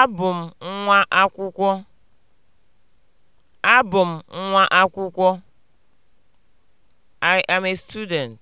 Abụ m nwa akwụkwọ. Abụ m nwa akwụkwọ. I am a student.